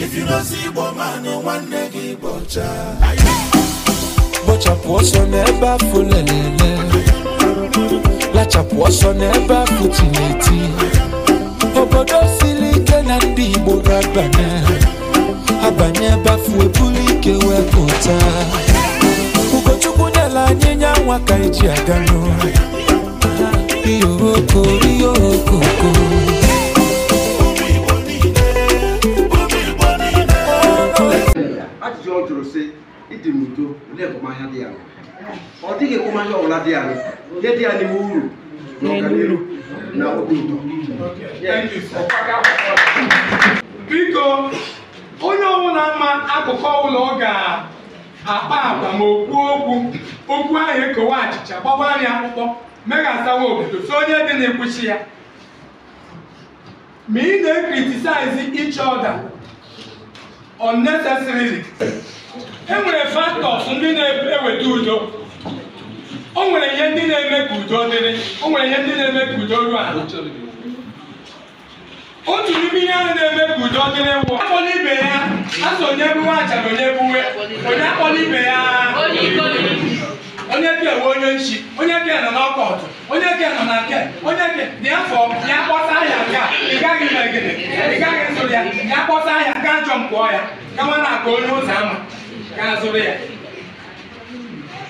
If you don't see Igbo man, no one negi bocha. Bochapụ ọsọ n'ebe afọ lelele. Lachapụ ọsọ n'ebe afọ Obodo siri ike na ndị Igbo ga-abanye. bafu ebe afọ ebulu ike wee pụta. Ugochukwu nyela anyị nyanwa ka eji aga n'ụlọ. Iyo okoko, iyo okoko. na-egoma ahịa dị ya ọ dịghị ekwomahịa ọbụla dị ya ihe dị ya n'ime uru na ọganihu na obi ụtọ biko onye ọbụla ama akụkọ ụlọ ga-akpa agwa ma okwu okwu okwu ahụ ekowe achịcha gbawa anya akpụkpọ meghasawa obodo so onye dị na-ekwuchi ya ma ị na-ekritisaizi each other unnecessarily e nwere factors ndị na-eweta udo o nwere ihe ndị na-eme ka udo dịrị o nwere ihe ndị na-eme ka udo ruo ala otu n'ime ihe ahụ na-eme ka udo dịrị nwụ akpọla ibe ya asọ onye buwe achara onye buwe onye akpọla ibe ya onye ke we onye nchi onye ke nọ n'ọkọ n'ọkọtụ onye ke nọ na nke onye ke dị afọ ya kpọta ya nke ị gaghị megide ị gaghị nso ya ya kpọta ya nke ajọ mkpọọ ya gawa na aka onye ụzọ ama ka ya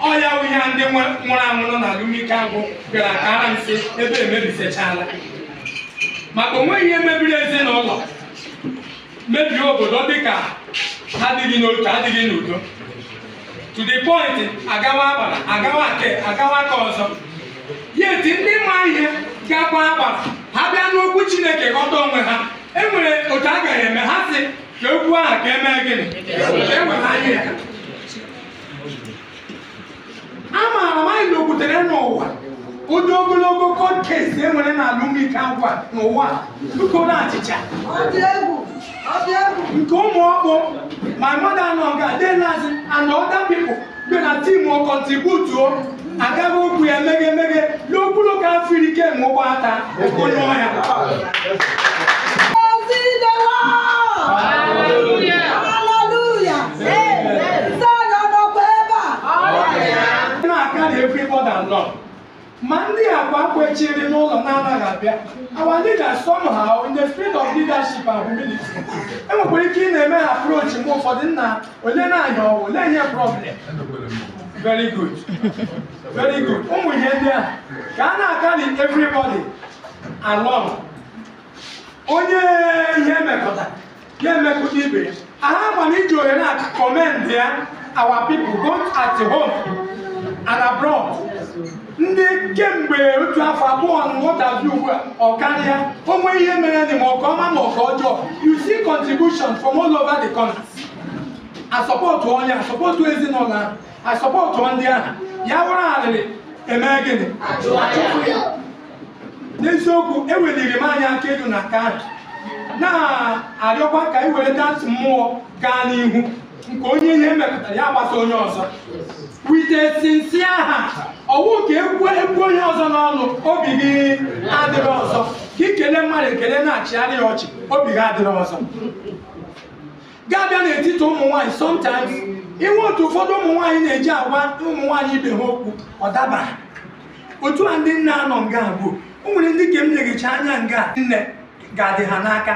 Ọya ya ndị nwụrụ anwụ nọ na alụmike agwụ bịara ka ara nsị ebe emebisechala maka onweghị ihe mebiri ezinụlọ mebiri obodo dịka adịghị n'otu adịghị n'udo to the point agawa agbara agawa agawa aka ọzọ yeti ndị ma ihe gakwa agbara ha bịa n'okwu chineke ghọta onwe ha enwere otu a gaghị eme ha si okwu ahụ ka emee gịnị amaara e m anyị na okwutere n'ụwa ụdị ogologo kọdkes enwere n'ala ụmụike ngwa n'ụwa nkoro achịcha nke ụmụ ọkpụ my mother anọga denazi and other people dị na tim kontributuo agaghị okwu ya meghe emeghe n'okpuru ka afirike ma ụgbọ ata okonye ọhịa ma ndị agwa kwechiri n'ụlọ na-anaghị abịa our leaders somehow in the spirit of leadership and humility enwekwara ike ị na-eme ha approach mgbe ụfọdụ nna ole na-anya ọwụ ole nye problem very good very good ụmụ ihe ndị a ka a na-akari everybody along onye ihe emekọta ya emekọta ibe ya aha gbana iji ohere a commend ya our people both at home and abroad ndị kemgbe otu afọ abụọ na nghọtazi ugbu a ọ karịa onwe ihe mere dị ma ọka ọma ma ọka ọjọọ you see contribution from all over the country asọpọtụ onye asọpọtụ ezinụlọ ahụ asọpọtụ ndị ahụ ya wụrụ arịrị eme gịnị n'eziokwu eweliri m anya aka elu na ka na-arịọkwa ka were ntị mmụọ gaa n'ihu nke onye ihe mepụtara ya gbasa onye ọzọ with a aha ọwụ ka egwu egwu onye ọzọ n'ọnụ obi gị adịrị ọzọ ka ikele mmadụ ekele na-achịgharị ya ọchị obi gị adịrị ọzọ Gaa abịa n'etiti ụmụ nwaanyị sometimes inwe otu ụfọdụ ụmụ nwaanyị na-eji agwa ụmụ nwaanyị ibe ha okwu ọ dabara otu a ndị nne anọ nga abụọ o nwere ndị ka m na anya nga nne ga-adị ha n'aka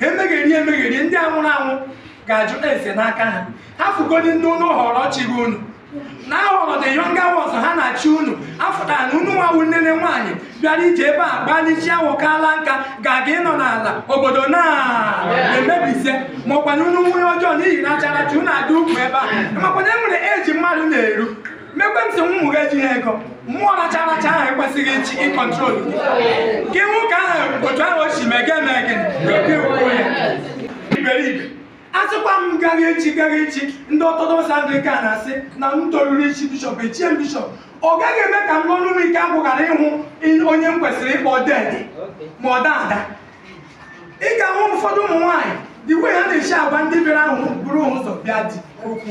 ha emegheri emegheri ndị anwụrụ anwụ ga-ajụ ese n'aka ha ha fugodi ndị ụnụ họrọ chi unu n'aghọrọ the younger ọzọ ha na-achị unu afụtara na unu nwawu ne nwaanyị bịara ije ebe a gbalịchie awụkala nka ga-aga ịnọ n'ala obodo na-emebisie ma na unu nwunye ọjọọ n'ihi na acharachi unu adị ukwu ebe a makwana e nwere eji mmadụ na-eru mekwentị ntị ụmụ ga ejighị ego mmụọ racha aracha ahụ ekwesịghị ichi ịkọntrol gị nwoke ahụ otu ahụ o si megee megee iberibe asịkwa m gaghị echi gaghị echi ndị ọtọdọs Anglican na-asị na m toruru ichi bishọp echie bishọp ọ gaghị eme ka m n'ọnụ m ike agwụ ghara ịhụ onye m kwesịrị ịkpọ ded ma ọ ada ị ga-ahụ ụfọdụ ụmụ nwaanyị dị ya ha na-echi agwa ndị bịara ahụ buru ụzọ bịa dị okwu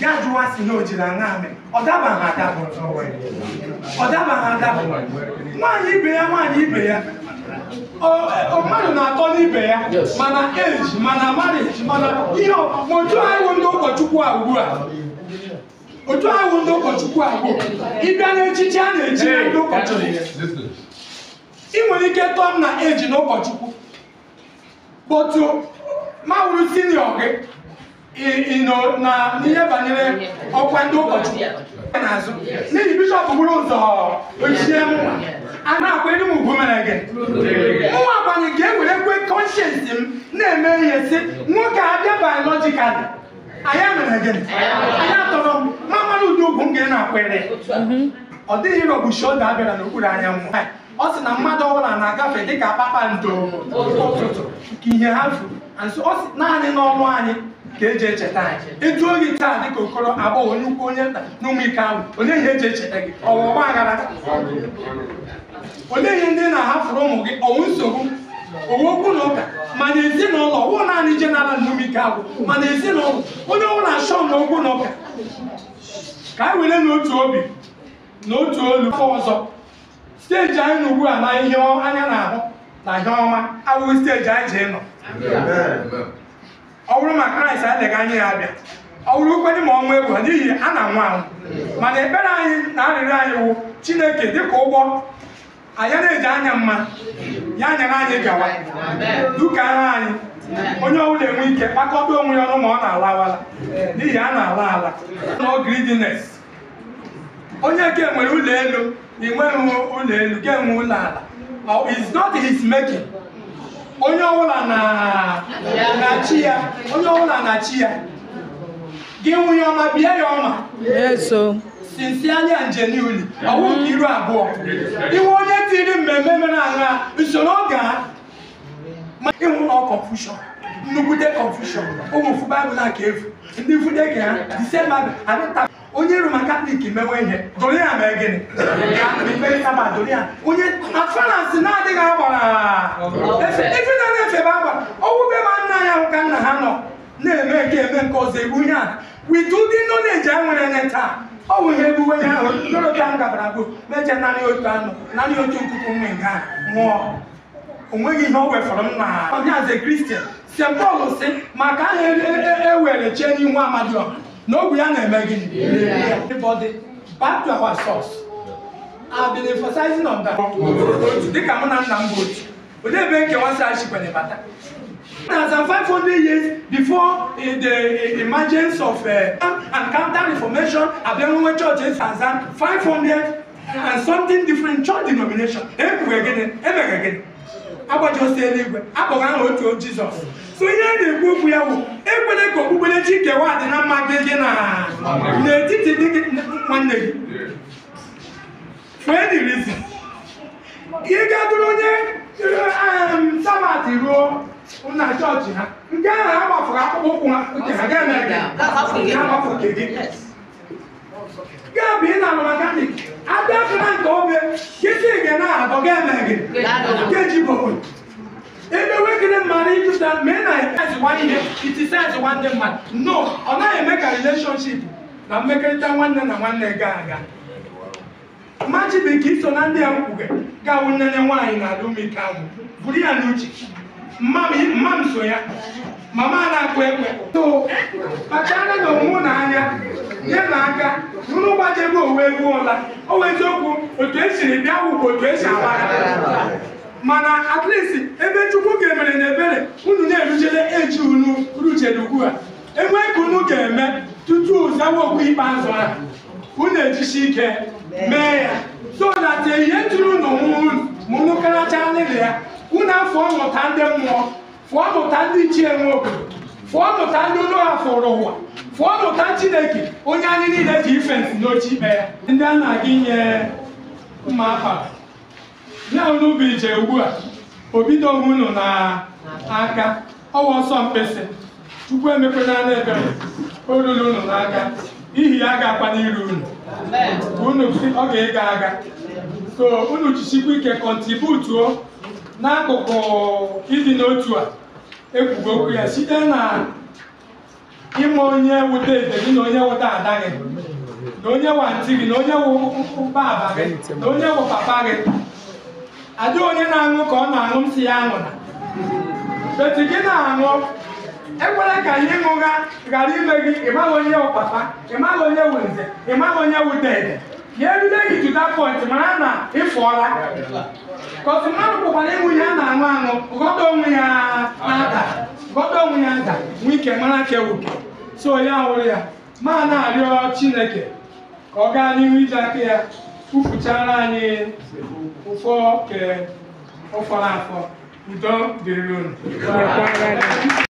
ga jụwa si na o jiri aṅa amị ọ daba ha ọ ha adaba nwaanyị ibe ya nwaanyị ibe ya mmadụ na-atọ n'ibe ya mana eji mana mariji mana ihe otu ahụ ndị ụkọchukwu a ugbu a otu ahụ ndị ụkọchukwu a ugbu ịbịa n'echichi a na-echi ndị ụkọchukwu ị nwere ike tọọ m na eji na ụkọchukwu kpọtụ mawụrụ sinio gị ịnọ na n'ihe banyere ọkwa ndị ụkọchukwu n'azụ n'ihi bishọp gburu ụzọ ochie mma a na-akwa enyi m ugwu mere gị nwa agbanye ga-ewere kwe kọnshensị m na-eme ihe si nwoke a bịa biolojikali anya mere gị anya tọrọ m ma mara ụdị ugwu m ga na-akwere ọ dịghị ịrọgbuchi oge a bịara n'okpuru anyanwụ ọ sị na mmadụ ọbụla na-agafe dịka kpakpando ụtụtụ ka ihe ha furu naanị n'ọnụ anyị ka eji echeta anyị etu oyi taa dịka okoro agbọghọ onye ukwu onye nta na ahụ onye ihe eji echeta gị ọwa aghara olee ihe ndị na-ahafụrụ ụmụ gị ọnwụ nsogbu owe okwu na ụka mana ezinụlọ wụ naanị jenara nnumike abụ mana ezinụlọ onye ọbụla achọ na okwu na ụka ka anyị were n'otu obi na otu olu ọzọ steji anyị na ugbu a na ihe anya na-ahụ na ihe ọma abụghị steji anyị ji nọ. ọ bụrụ ma kraịst adịghị anya ya abịa ọ bụrụ kwenye ma ọnwụ egwu n'ihi a na-anwụ anwụ mana ekpere anyị na arịrịọ anyị wụ chineke dịka ụgbọ anya na-eji anya mma ya nyere anyị gawa duka anyị onye ọbụla enwe ike kpakọta onwe ya ọnụ ma ọ na-alawala n'ihi a na-ala ala n'ọgridines onye ke nwere ụlọ elu inweghị ụlọ elu nke enwe ụlọ ala is not his making onye ọbụla na chi ya onye ọbụla na chi ya gị nwunye ọma bie ya ọma sincerely and genuinely ọwụ nke iru abụọ iwe onye tiri mmemme mere aṅa usoro ọ ga ịhụ na confusion nnukwute confusion ụmụ ụfụ baịbụl na ndị fude ka ha disemba adịta onye roma katọlik mewe ihe doria mee gịnị mepere saba doria onye afanansi na-adịghị agbara na-efe ma ya ka nna ha nọ na-eme ke eme nke ihe a ọ bụ ihe ebuwe ya ahụ ndọrọta m gabara bụ na-eche naanị otu anụ naanị otu nkuku nwe nga nwụọ onweghị ihe o wefọrọ m na ọnyaze kristian se pọl si maka aha ewere e, e, e chie n'ihu amadiọ na ogwu ya na-eme gịnị back to our source I've been emphasizing on that dịka mụ na nna m bụ otu Odee Benke once hardship on Ebata. As in 500 years before the emergence of uh, and counter reformation, Abemwe Church in Tanzania, 500 and something different church denomination. Emeghị gịnị emeghị gịnị agbajọsi eluigwe akpọrọ aha otu Jesus. So ihe a na-ekwu okwu ya bụ ekwele ka okpukperechi kewa dị na mma gị gị na n'etiti dị gị nwanne gị. For any reason, ị ga-adụrụ onye sabat ruo na chọọchị ha nke ahụ ha gbafụrụ akpụkpọ ụkwụ ha nke ha ga-eme gị gaabụ ị na-alụ mekanik abịafụna nke obe kịtị gị na abọ ga-eme gị nkeji bobo ebewegịrị mmadụ ịjụta ma ị na-ezikwa ihe itisa ezikwa ndị mmadụ no ọ naghị eme ka releshọnship na mmekọrịta nwanne na nwanne gaa aga iso na ndị a mkpuke gawu nnene nwaanyị na-adị ume buru ya n'uche mma m so ya mama na-akụ ekwe so kpachara na onwe n'anya nye na aka nụrụ gbajebe owe egwu ọla owe eziokwu otu esiri bịa wụbụ otu esi agbara mana at least ebe chukwu ga-emere na ebere unu na-eruchele eji unu ruchere ugbu a enwee ka unu ga-eme tutu zawa okwu ikpeazụ ahụ Eh, na ejisi ike mee ya so na te ihe tụrụ unu mụnụ karacha nlele ya unu afọ mụta ndị mmụọ fụọ mụta ndị ichie nwe obodo fụọ mụta ndị unu ha fụrụ ụwa fụọ mụta chineke onye anyị niile ji ife ntị mee ya ndị a na-aga inye mma afa na unu bụ ije ugbu a obido onwe unu na aka ọwa ọsọ mkpịsị chukwu emekwena na ebere o ruru unu n'aka ihi ya ga-akpa n'iru unu unu si ọ ga-ego aga so unu jisikwa ike kọntributuo n'akụkụ ịdị n'otu a ekwugo ya site na ịma onye wute ede gị na onye wụta ada gị na onye wa ntị gị na onye wụ baba gị na onye wụ papa gị ada onye na-aṅụ ka ọ na-aṅụ m si ya aṅụ na gị na-aṅụ ekwela ka anyị ṅụga ghara ime gị ịmaghị onye ọpapa ịmaghị onye wu nze ịmaghị onye wudede ya erule gị to that point mara na ịfụọla kọsụ mmadụ pụkwara ịnwụ ya na-aṅụ aṅụ gọdọ onwe ya nada gọdọ onwe ya nda nwee ike mara ka ewuke so ya hụrụ ya ma na-arịọ chineke ka ọ gaa n'ihu iji aka ya kwufuchara anyị ụfọ ke ụfọrọ afọ udo dịrị unu